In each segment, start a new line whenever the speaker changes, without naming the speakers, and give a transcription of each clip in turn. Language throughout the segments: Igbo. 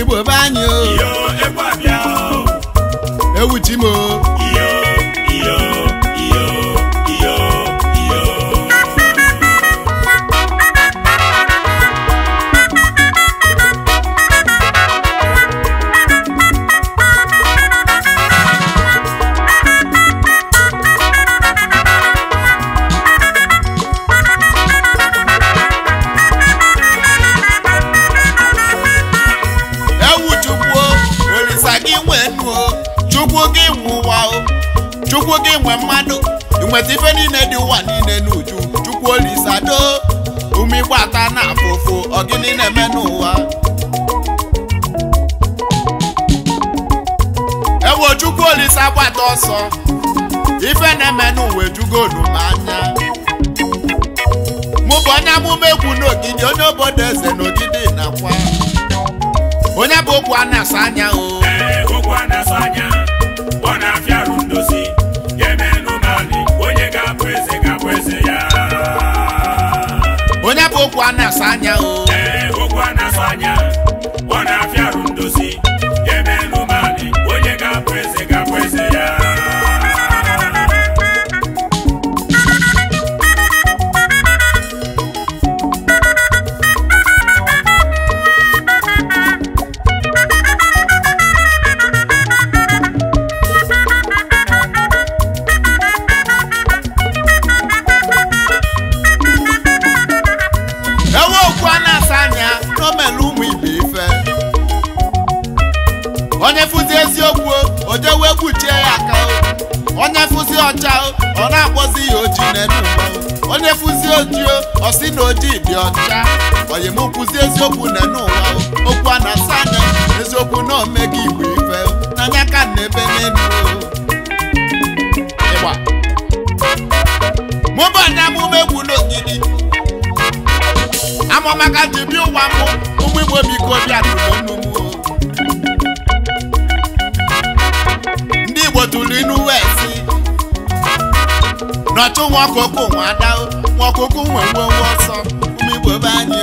igbo be anyị o ewu chimo ndị nwe mmadụ inweta ife niile dị ụwa niile n'uju chukwu olisado ume ịgbata na afụfụ ọgịnị na-eme n'ụwa ewo chukwu olisa gbata ọsọ ife na-eme n'ụwa ejugo m anya mụ bụ onye amụma egwu n'ogidi onye obodo eze n'ogidi nakwa onye bụ okwu a na-asa anya o onye bụ okwu a na-asa anya o ọcha ọ na-akpọzi ya oji n'elu ụwa onye fụzi oji ọ sị na ojii dị ọcha onye m kwụzi eziokwu n'elu ụwa okwu a na-asa anya eziokwu na ome omega igbo ife n'anya ka na ebe n'elu ịgba mụba na amụma egwu n'ogidi amụmaka ji bịa ụwa mụ ụmụ igbo biko bịa tụrụ ndị igbo tụrụ inu west n'ọchụ nwa ọkụkụ nwa ada nwa ọkụkụ nwe nwe nwe ọsọ ụmụ Igbo be anyị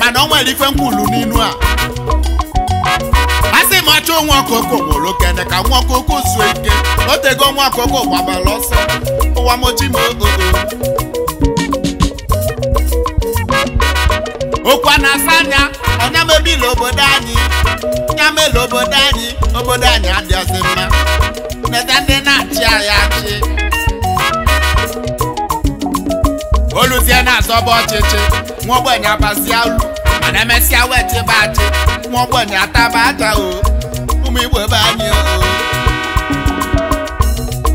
mana ọ nwere ife nkwulu n'inu a asị m achọ nwa ọkụkụ nwụrụ okene ka nwa ọkụkụ zuo ike o tego nwa ọkụkụ gbabara ọsọ ụwa moji m ogogo okwu a na-asa anya ọ nyamebi obodo anyị nyamela obodo anyị obodo anyị adịghịzi mma neta ndị na-achị anyị achị oluzie na-azọba ọchịchị nwa ogbenye abazie olu mana emesịa wechebe achị nwa ogbenye ataba aja o ụmụ be anyị o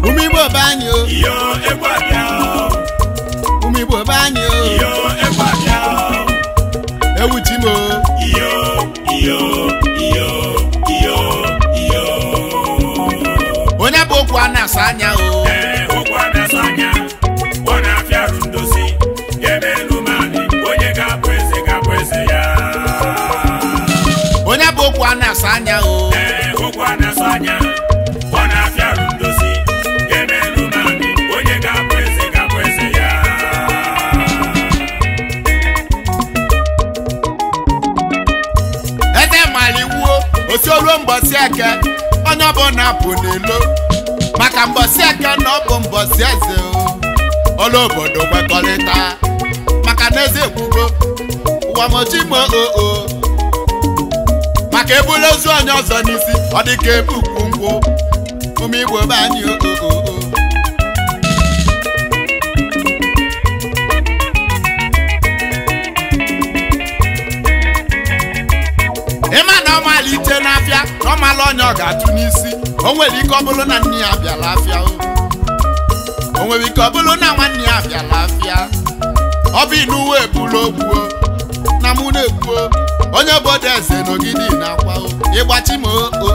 ụmụ igbo be anyị o Iyo, iyo, iyo, iyo, iyo onye bụ okwu a na-asa anya o ọ na-afịa arụ ndozi ebe elu mali onye ga-abụ eze ga-abụ eze ya onye bụ okwu a na-asa anya o eke onye na-apụ n'elu maka mbọsị eke na ọ bụ mbọsị eze ọla obodo kwekọrịta maka na eze ekwugo ụwamochimo oo maka ebula ozu onye ọzọ n'isi ọ dịka ebu ukwu nkwụ ụmụ igbo be anyị oo malite n'afịa na ọmala ọnya ọ ga-atụ n'isi o nwere ike ọ bụrụ na nne ya bịara afịa o nwere ike ọ bụrụ na nwanne ya bịara afịa ọ bụ inuwe na mụ na-egbuo onye obodo eze n'ogidi na-akwa ịgbachi ma oo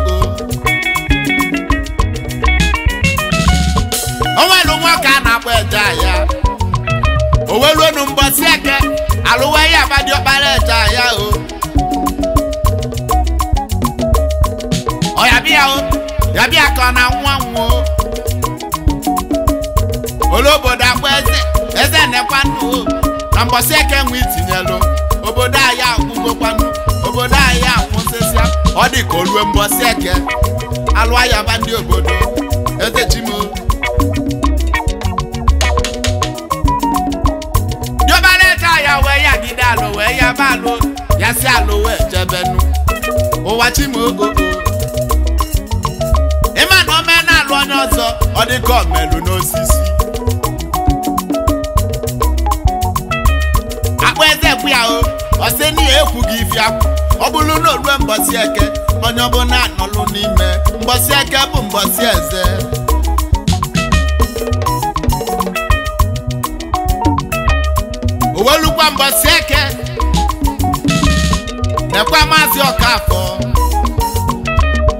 o nwere nwoke a na-akpọ eje ahịa o weruonu mbọsi eke alụwa ihe agbadi ọkpara eje ahịa o ọ ya bịa na nwụọ olobodo akwa eze eze nekwanụ na mbọsị eke nwe itinyelụ obodo anyị akwụgokwanụ obodo anyị akwụsịsịa ọ dị ka eke ndị obodo eze chimo diobaleta ya wee ya gide alụ ya anya ọzọ ọ dịka ọmelụ n'osisi akpa eze kwu ya o ọsị na ya ekwughị ife akwụ ọ bụrụ na orue mbọsị eke onye ọbụla anọlụ n'ime mbọsị eke bụ mbọsị eze owelukwa mbọsị eke nekwa maazị ọkafọ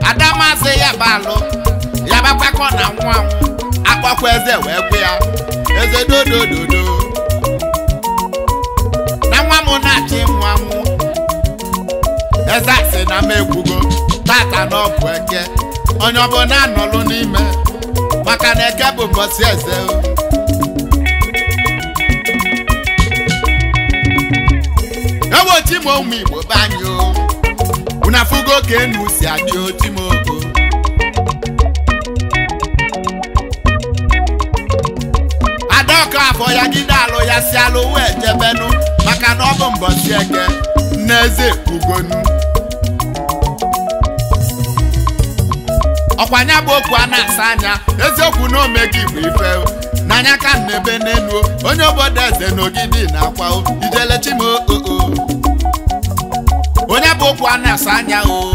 ada maazị ya bụ alụ na-abakwa na-anwụ anwụ eze wee gwe ya eze dodododo na nwa m na-achị nwa mụ eze asị na m egwugo tata na ọbụ eke onye ọbụla anọlụ n'ime maka na eke bụ mbọsị eze ewochi m ụmụ igbo be anyị unu afụgo ka enu si achị ochimo Nneka afọ ya gide alụ ya si alụ wee jebenu maka na ọ bụ mbọsi eke n'eze ugonu ọkwanya bụ okwu a na-asa anya eziokwu na omegi bụ ife n'anya ka nnebe n'elu onye obodo eze n'ogidi na akwa ijelechim oo onye bụ okwu a asa anya o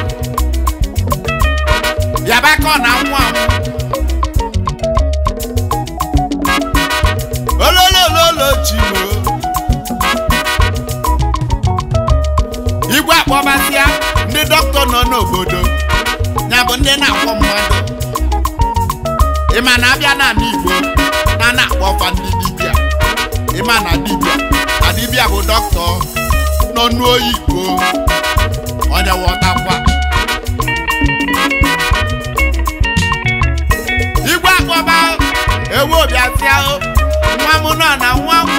bịaba aka ọ na nwa ololololochimo igwe akpọbasịa ndị dọkịta nọ n'obodo ya bụ ndị na-akpọ mmadụ ịma na abịa n'ala Igbo na na-akpọ ọfa ndị dibịa ịma na dibịa na dibịa bụ dọkịta nọ igbo onye wọtakwa ngwaba ewu obi ahụ nwa m nọ na nwa m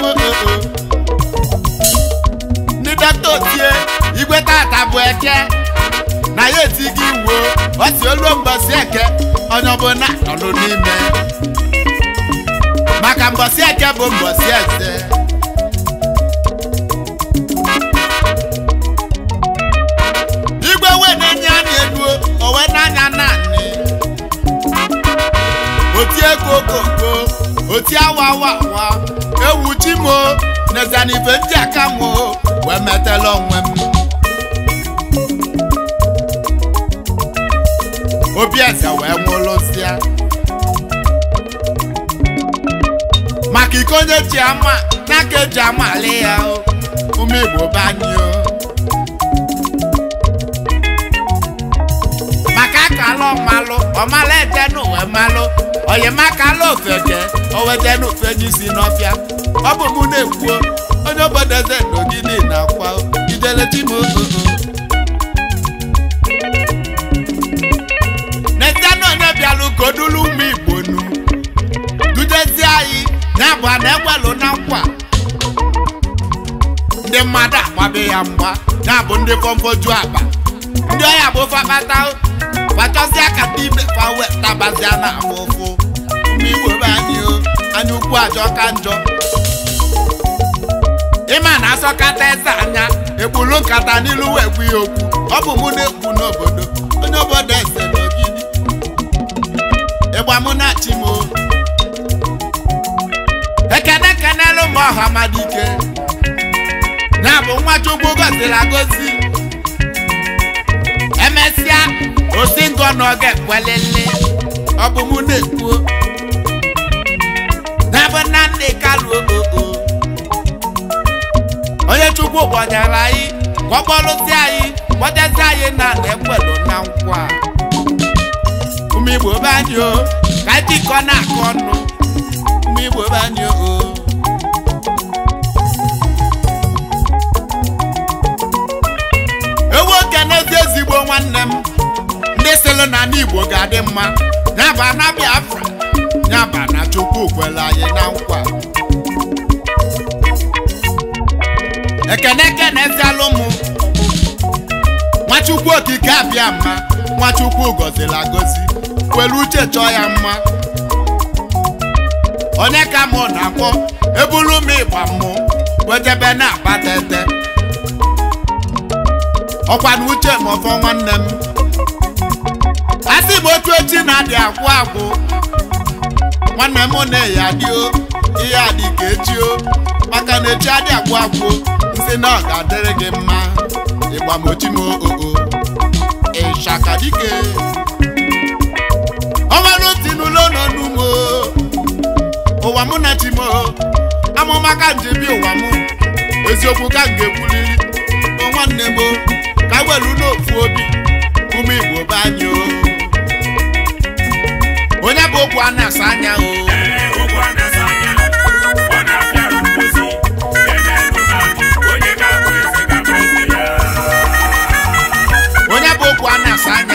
ndị dọkịta otie igweta tata bụ eke na ya etu gị iwuo ọ si mbosi eke onye ọbụla nọ n'ime maka mbosi eke bụ mbosi eze otie kokoko otie wawawa ewu ji m nezanife ndị aka m wee metela onwe m obi eze wee nwụlụsịa maka iko onye ji ama n'aka eji amali ya ụmụ igbo banyụọ maka akala ọmalụ ọmala ede n'ụwa malụ onyemaka ala ofeke owete n'ofe onye isi n'ọfịa ọ bụ mụ na-ekwuo onye na eze n'ogidi na akwa ideletimoo netena onye bịalụ ka odulu ụmụ igbo nu dudezi anyị na-abụ a na na nkwa ndị mmadụ agbabe ya mgba na-abụ ndị fọmfoju akpa ndị bụ akazie akata ime fawe tabazia na afụ ụfụ n'igbo be anyị anya ukwu ajọ ka njọ ịma na asọkata eze anya egburu nkata n'ilu wee ya okwu ọ bụ mụ na-ekwu n'obodo onye obodo eze na ogidi ịgba mụ na chi m ekene kenelu m ọha madike ya bụ nwa chukwu goziri agozi emesịa osi ngụ ọnụ ọ ga-ekwelele ọ bụ mụ na-ekwuo n'ebe nna nna kaluo oo onye chukwu kpọnyere anyị ka ọ anyị kpọtezi anyị na ekwelu na nkwa ụmụ igbo be o ka jikọ na-akụ ọnụ ụmụ igbo be o ewu oke n'ezi ezigbo nwanne m ndị sịlụ na ndị Igbo ga-adị mma nyaba na Biafra nyaba na Chukwu kwere anyị na nkwa ekene na zialụ m Nwachukwu okike abịa mma Nwachukwu gọziri agọzi kwelu uche chọọ ya mma onye ka mụ na-akpọ eburu m ịgba mmụ wejebe na-akpa tete ọkwa na uche ma ọfọ nwanne m ndị Igbo otu echi na-adị agwụ agwụ nwanne m na-eyi adịo ihe adị ka echio maka na echi adị agwụ agwụ nsị na ọ ga-adịrị gị mma ịgbamochimokoko ịchaka dike ọmalụ ti n'ụlọ nọ n'ugbo ụwa mụ na chimo amụma ka njebi ụwa m eziokwu ka m ga-ekwuliri nwanne m ka welu n'ofu obi ụmụ Igbo be anyị o onye bụ okwu a anya o onye bụ okwu a na-asa anya